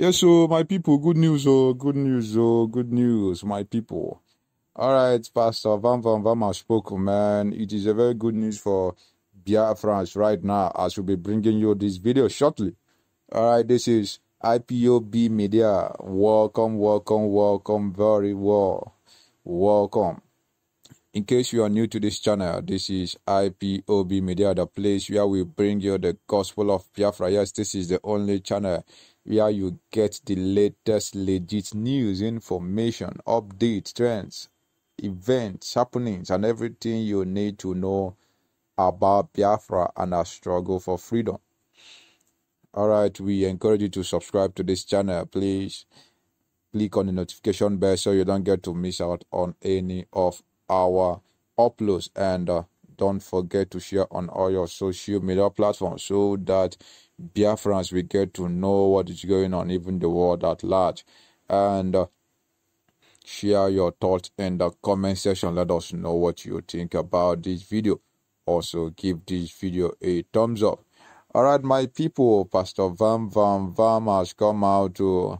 Yes, so my people, good news, oh, good news, oh, good news, my people. All right, Pastor Van Van Van has spoken, man. It is a very good news for Biafrans right now. I shall be bringing you this video shortly. All right, this is IPOB Media. Welcome, welcome, welcome, very well. Welcome. In case you are new to this channel, this is IPOB Media, the place where we bring you the gospel of Biafra. Yes, this is the only channel where you get the latest legit news, information, updates, trends, events, happenings, and everything you need to know about Biafra and our struggle for freedom. All right, we encourage you to subscribe to this channel. Please click on the notification bell so you don't get to miss out on any of our uploads and uh, don't forget to share on all your social media platforms so that Biafra, as we get to know what is going on, even the world at large. And uh, share your thoughts in the comment section. Let us know what you think about this video. Also, give this video a thumbs up. All right, my people, Pastor Vam Vam Vam has come out to,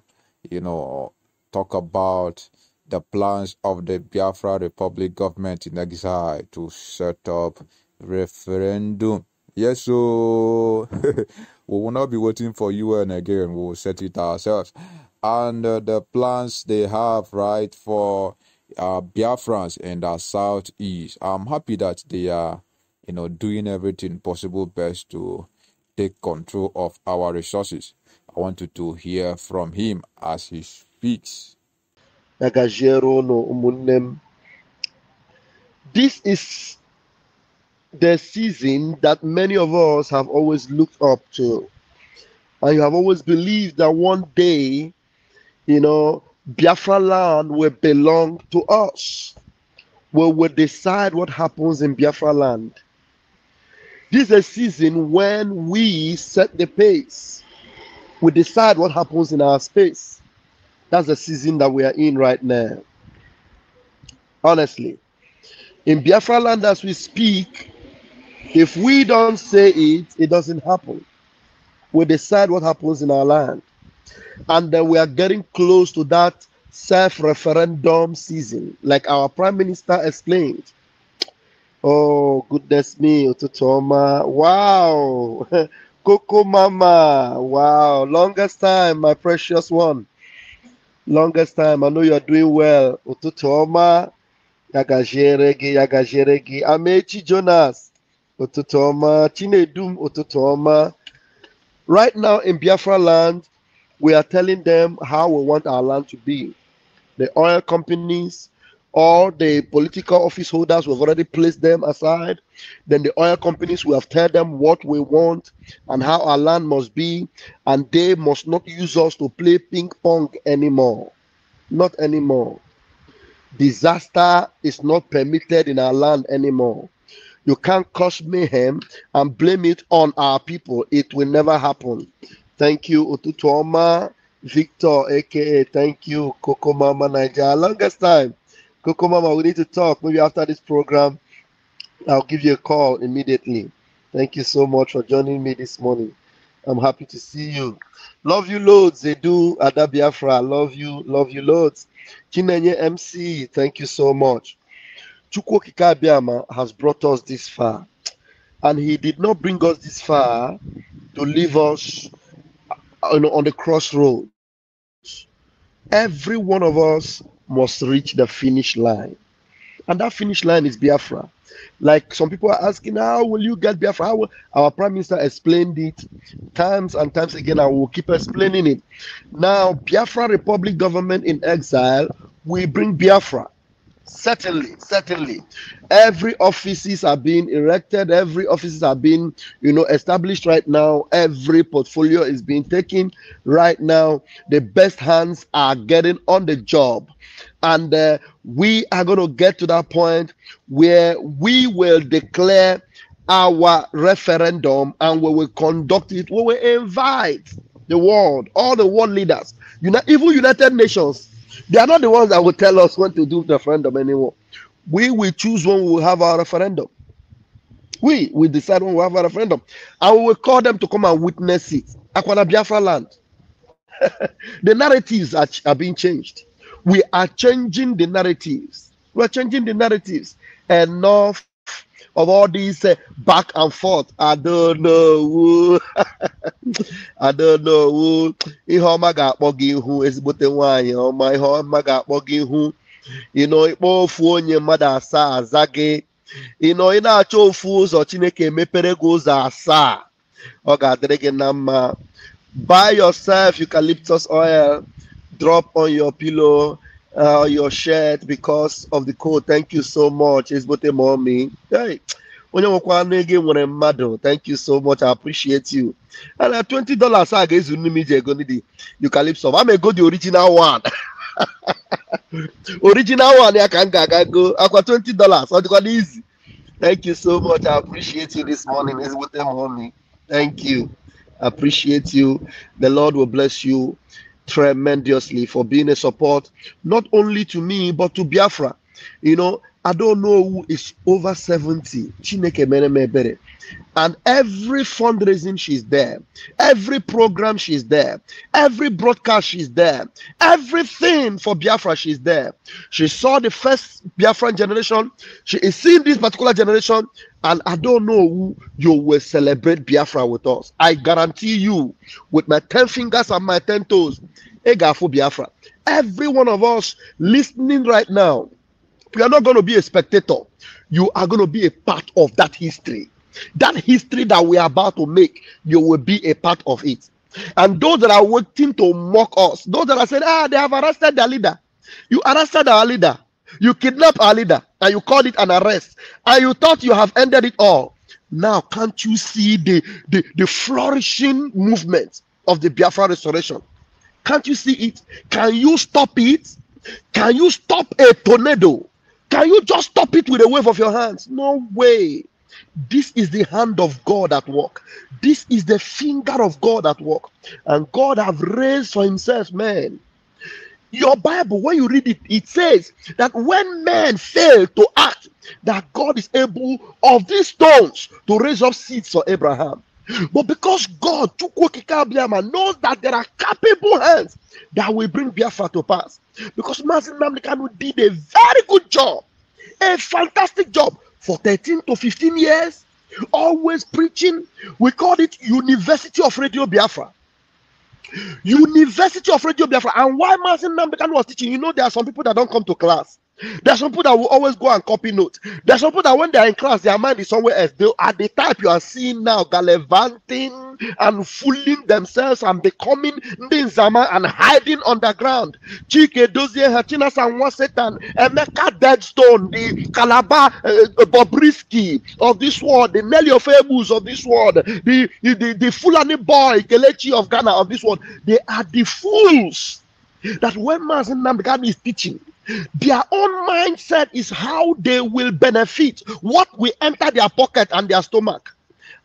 you know, talk about the plans of the Biafra Republic government in exile to set up referendum. Yes, oh. so We will not be waiting for UN again. We will set it ourselves. And uh, the plans they have, right, for uh, Biafrans and the Southeast, I'm happy that they are, you know, doing everything possible best to take control of our resources. I wanted to hear from him as he speaks. This is the season that many of us have always looked up to. And you have always believed that one day, you know, Biafra land will belong to us. We will decide what happens in Biafra land. This is a season when we set the pace. We decide what happens in our space. That's the season that we are in right now. Honestly. In Biafra land, as we speak, if we don't say it, it doesn't happen. We decide what happens in our land. And then we are getting close to that self referendum season, like our prime minister explained. Oh, goodness me, Ototoma. Wow. Coco Mama. Wow. Longest time, my precious one. Longest time. I know you're doing well. Ototoma. Yagajeregi, Yagajeregi. Amechi Jonas ụtụtụ chinedum ụtụtụ right now in biafra land we are telling them how we want our land to be the oil companies all the political office holders we've already placed them aside then the oil companies we have told them what we want and how our land must be and they must not use us to play ping pong anymore not anymore disaster is not permitted in our land anymore you can't cause mayhem and blame it on our people. It will never happen. Thank you, Otutuoma Victor, aka thank you, Coco Mama Niger. Longest time. Coco Mama, we need to talk. Maybe after this program, I'll give you a call immediately. Thank you so much for joining me this morning. I'm happy to see you. Love you loads. They do Ada Biafra. Love you. Love you loads. Chinenye MC, thank you so much. Chukwoki Kabiama has brought us this far. And he did not bring us this far to leave us uh, on, on the crossroads. Every one of us must reach the finish line. And that finish line is Biafra. Like some people are asking, how will you get Biafra? Our Prime Minister explained it times and times again. I will keep explaining it. Now, Biafra Republic government in exile will bring Biafra certainly certainly every offices are being erected every offices are being you know established right now every portfolio is being taken right now the best hands are getting on the job and uh, we are going to get to that point where we will declare our referendum and we will conduct it we will invite the world all the world leaders you know even united nations they are not the ones that will tell us when to do the referendum anymore. We will choose when we will have our referendum. We will decide when we have our referendum. And we will call them to come and witness it. Aquana Biafra land. the narratives are, are being changed. We are changing the narratives. We are changing the narratives. Enough of all these uh, back and forth. I don't know. I don't know. Ihe ọma ga-akpọ gị ihu ezigbote nwaanyị ọma ihe ọma ga-akpọ gị ihu ịnọ ịkpọ ofu onye mmadụ asaa aza gị ị na-achọ ofu ụzọ Chineke mepere gị ụzọ asaa ọ ga-adịrị gị na mma buy yourself eucalyptus oil drop on your pillow uh, your shirt because of the code. Thank you so much. It's but mommy. Hey. Onye nwekwa anụ ego e thank you so much I appreciate you. And uh, twenty dollars a ga You nne m iji ego ndị Eucalypso. I'm the original one. original one I ka go. I aga go twenty dollars ọ dịkwa n'izi. Thank you so much. I appreciate you this morning. It's Ezigbote m homie. Thank you. I appreciate you. The Lord will bless you. tremendously for being a support, not only to me, but to Biafra. You know, I don't know who is over 70. And every fundraising, she's there. Every program, she's there. Every broadcast, she's there. Everything for Biafra, she's there. She saw the first Biafran generation. She is seeing this particular generation. And I don't know who you will celebrate Biafra with us. I guarantee you, with my 10 fingers and my 10 toes, Egafu Biafra. Every one of us listening right now, you are not going to be a spectator. You are going to be a part of that history. That history that we are about to make, you will be a part of it. And those that are waiting to mock us, those that are saying, ah, they have arrested their leader. You arrested our leader. You kidnapped our leader and you called it an arrest and you thought you have ended it all now can't you see the the, the flourishing movement of the biafra restoration can't you see it can you stop it can you stop a tornado can you just stop it with a wave of your hands no way this is the hand of god at work this is the finger of god at work and god have raised for himself man your Bible, when you read it, it says that when men fail to act, that God is able of these stones to raise up seeds for Abraham. But because God knows that there are capable hands that will bring Biafra to pass. Because Mazin Namdekanu did a very good job, a fantastic job for 13 to 15 years, always preaching. We call it University of Radio Biafra. University of Radio Biafra. And why Martin Nambekano was teaching, you know, there are some people that don't come to class. There are some people that will always go and copy notes. There are some people that when they are in class, their mind is somewhere else. They are the type you are seeing now, gallivanting and fooling themselves and becoming ninzama and hiding underground. Chike Dozie Hachina Sanwa Satan, Emeka Deadstone, the kalaba, uh, Bobrisky of this world, the Nelly of of this world, the, the, the, the Fulani boy, Kelechi of Ghana of this world. They are the fools that when Mazen Namdekan is teaching, their own mindset is how they will benefit what will enter their pocket and their stomach.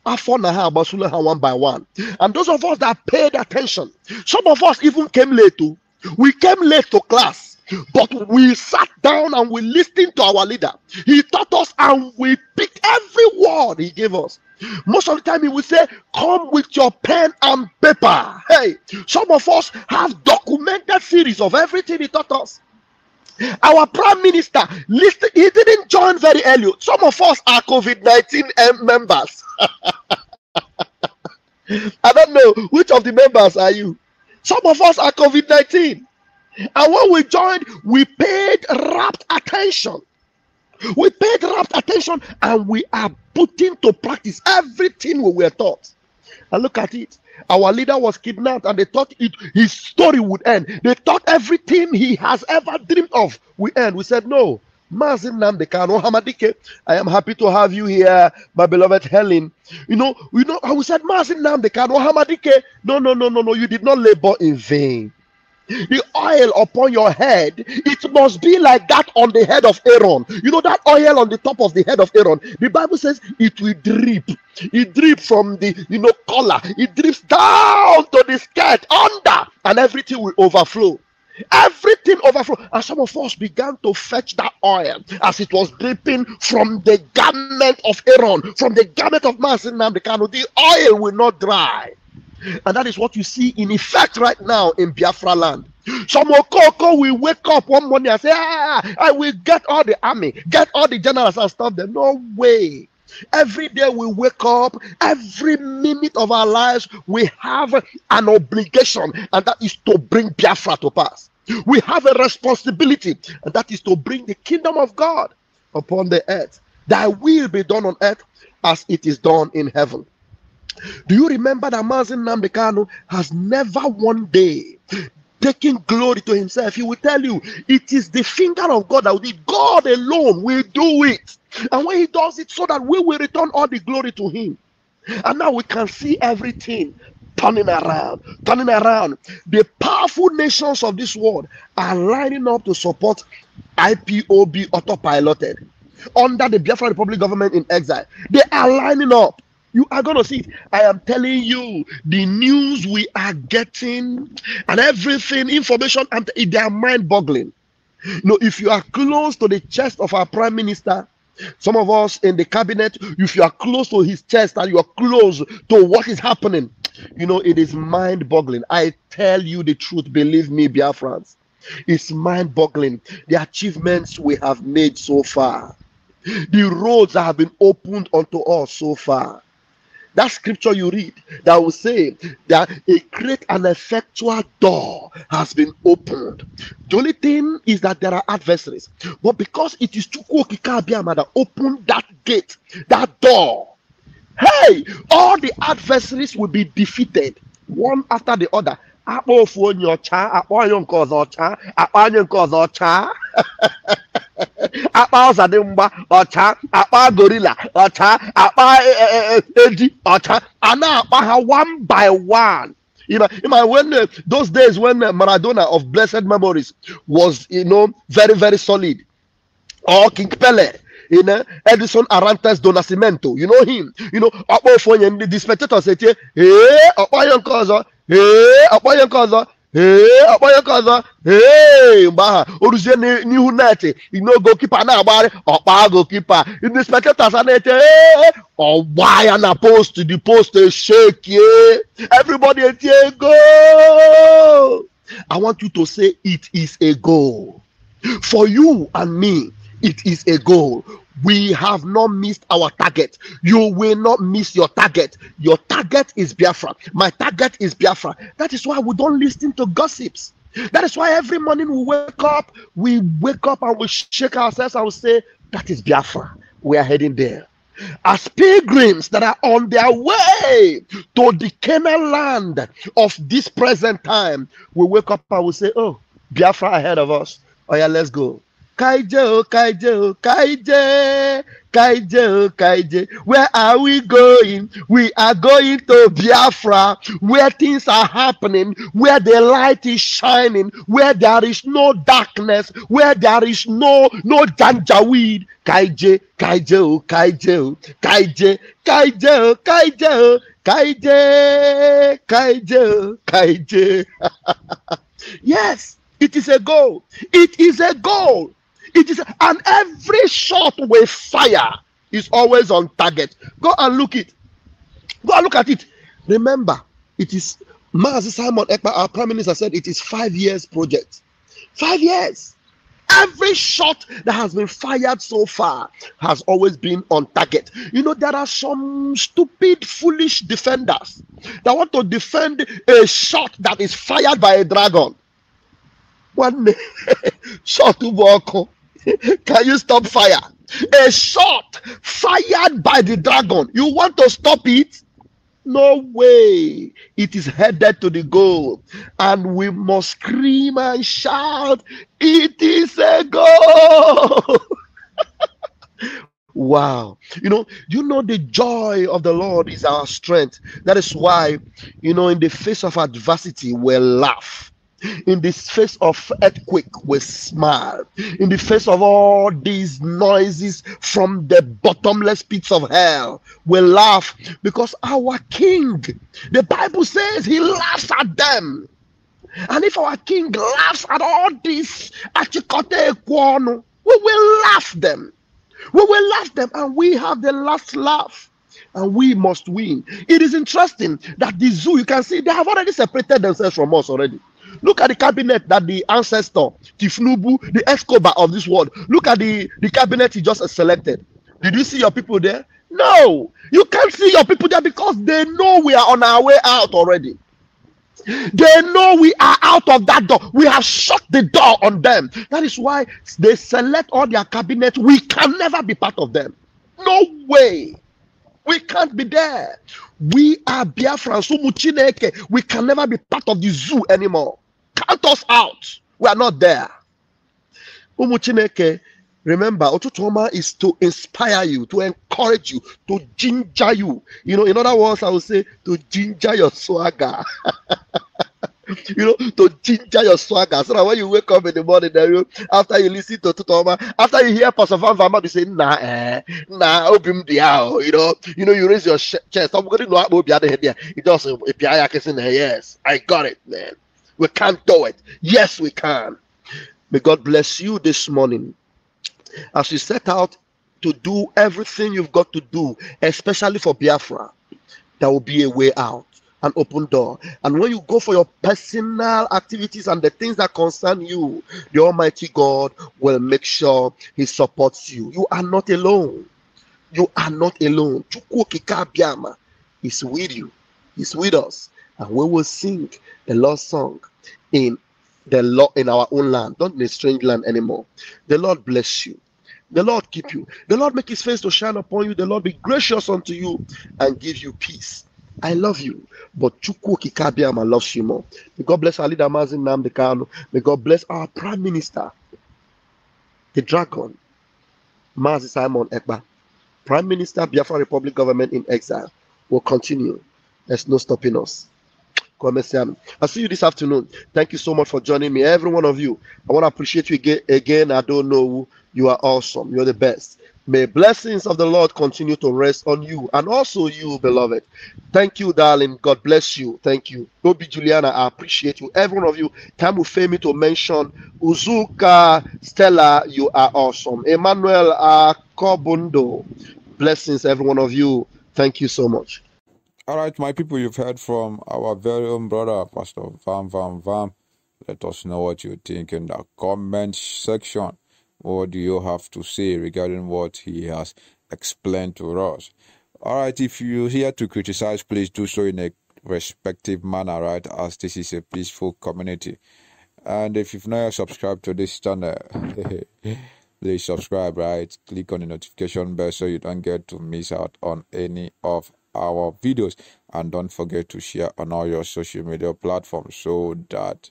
One by one. And those of us that paid attention, some of us even came late too. Oh. We came late to class, but we sat down and we listened to our leader. He taught us and we picked every word he gave us. Most of the time, he would say, Come with your pen and paper. Hey, some of us have documented series of everything he taught us. Our prime minister, listen, he didn't join very early. Some of us are COVID 19 eh, members. I don't know which of the members are you. Some of us are COVID 19. And when we joined, we paid rapt attention. We paid rapt attention and we are putting to practice everything we were taught. And look at it. Our leader was kidnapped and they thought it, his story would end. They thought everything he has ever dreamed of would end. We said, no. Mazin no Hamadike, I am happy to have you here, my beloved Helen. You know, you know, I said, Mazin Namdekano Hamadike. No, no, no, no, no, you did not labor in vain the oil upon your head it must be like that on the head of aaron you know that oil on the top of the head of aaron the bible says it will drip it drip from the you know collar it drips down to the skirt under and everything will overflow everything overflow and some of us began to fetch that oil as it was dripping from the garment of aaron from the garment of masin the oil will not dry and that is what you see in effect right now in Biafra land. Some Okoko will wake up one morning and say, ah, I will get all the army, get all the generals and stop them. No way. Every day we wake up, every minute of our lives, we have an obligation, and that is to bring Biafra to pass. We have a responsibility, and that is to bring the kingdom of God upon the earth. Thy will be done on earth as it is done in heaven. Do you remember that Mazin Nambekano has never one day taking glory to himself? He will tell you it is the finger of God that will do God alone will do it. And when he does it, so that we will return all the glory to him. And now we can see everything turning around, turning around. The powerful nations of this world are lining up to support IPOB autopiloted under the Biafra Republic government in exile. They are lining up. You are going to see it. I am telling you, the news we are getting and everything, information, and they are mind boggling. You know, if you are close to the chest of our prime minister, some of us in the cabinet, if you are close to his chest and you are close to what is happening, you know, it is mind boggling. I tell you the truth, believe me, Biafrans. It's mind boggling. The achievements we have made so far, the roads that have been opened unto us so far that scripture you read that will say that a great and effectual door has been opened. The only thing is that there are adversaries, but because it is that opened that gate, that door, hey, all the adversaries will be defeated one after the other. akpọ ofu onye ọcha akpọ onye nke ọzọ ọcha akpa ọzadị mgba ọcha akpa gorila ọcha akpa e, e, e, eji ọcha a na-akpa ha one by one You you know, know when uh, those days when uh, Maradona of blessed memories was, you know, very, very solid, or King Pele, you know, Edison Arantes do you know him, you know, Akpo Fonye, the spectators say, hey, Akpo Yankozo, hey, Akpo Yankozo, ee ọkpọnye nke ọzọ ee mgbe aha oruzie n'ihu neti n'ogokipa na-agbagharị ọkpa gokipa ndị spectators a na-eche ee ọgba ya na post the post eshekie eh. everybody etie goal i want you to say it is a goal for you and me it is a goal we have not missed our target. You will not miss your target. Your target is Biafra. My target is Biafra. That is why we don't listen to gossips. That is why every morning we wake up, we wake up and we shake ourselves and we say, That is Biafra. We are heading there. As pilgrims that are on their way to the Canaan land of this present time, we wake up and we say, Oh, Biafra ahead of us. Oh, yeah, let's go. Kaije, oh, Kaije, oh, Kaije, Kaije, oh, Kaije. Where are we going? We are going to Biafra, where things are happening, where the light is shining, where there is no darkness, where there is no no janjaweed. Kaije, Kaije, oh, Kaije, oh, Kaije, Kaije, oh, Kaije, oh, Kaije, Kaije, Kaije. yes, it is a goal. It is a goal. It is, and every shot with fire is always on target. Go and look it. Go and look at it. Remember, it is Mazi Simon Ekpa, our prime minister, said it is five years project. Five years. Every shot that has been fired so far has always been on target. You know, there are some stupid, foolish defenders that want to defend a shot that is fired by a dragon. One shot to walk. Can you stop fire? A shot fired by the dragon. You want to stop it? No way. It is headed to the goal. And we must scream and shout, It is a goal. wow. You know, you know, the joy of the Lord is our strength. That is why, you know, in the face of adversity, we laugh in the face of earthquake we smile. in the face of all these noises from the bottomless pits of hell we laugh because our king the bible says he laughs at them and if our king laughs at all this we will laugh them we will laugh them and we have the last laugh and we must win it is interesting that the zoo you can see they have already separated themselves from us already Look at the cabinet that the ancestor, Tifnubu, the Escobar of this world, look at the, the cabinet he just selected. Did you see your people there? No, you can't see your people there because they know we are on our way out already. They know we are out of that door. We have shut the door on them. That is why they select all their cabinet. We can never be part of them. No way. We can't be there. We are Biafran, Sumu We can never be part of the zoo anymore us out. We are not there. remember, Otutoma is to inspire you, to encourage you, to ginger you. You know, in other words, I would say to ginger your swagger. you know, to ginger your swagger. So that when you wake up in the morning, then you, after you listen to Otutoma, after you hear Pastor Van Vama, you say, nah, eh, nah, open the out. You know, you know, you raise your chest. I'm going to know how to be out of here. It does, yes, I got it, man. We can't do it. Yes, we can. May God bless you this morning as you set out to do everything you've got to do, especially for Biafra. There will be a way out, an open door. And when you go for your personal activities and the things that concern you, the Almighty God will make sure He supports you. You are not alone. You are not alone. Chukwu is with you. He's with us and we will sing the Lord's song in the law in our own land, not in a strange land anymore. The Lord bless you. The Lord keep you. The Lord make his face to shine upon you. The Lord be gracious unto you and give you peace. I love you, but Chukwu Kikabiama loves you more. May God bless our leader, Mazin Namdekano. May God bless our prime minister, the dragon, Mazi Simon Ekba. Prime Minister, Biafra Republic government in exile will continue. There's no stopping us. Commercial. I'll see you this afternoon. Thank you so much for joining me, every one of you. I want to appreciate you again. Again, I don't know who. You are awesome. You're the best. May blessings of the Lord continue to rest on you and also you, beloved. Thank you, darling. God bless you. Thank you. Obi Juliana, I appreciate you. Every one of you. Time will fail me to mention Uzuka Stella. You are awesome. Emmanuel Akobundo. Blessings, every one of you. Thank you so much. All right, my people, you've heard from our very own brother, Pastor Van Van Van. Let us know what you think in the comment section. What do you have to say regarding what he has explained to us? All right, if you're here to criticize, please do so in a respective manner, right? As this is a peaceful community. And if you've not subscribed to this channel, please subscribe, right? Click on the notification bell so you don't get to miss out on any of our videos and don't forget to share on all your social media platforms so that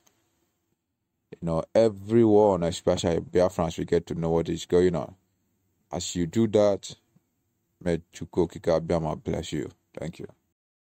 you know everyone especially Biafrans we get to know what is going on as you do that may Chukwokika bless you thank you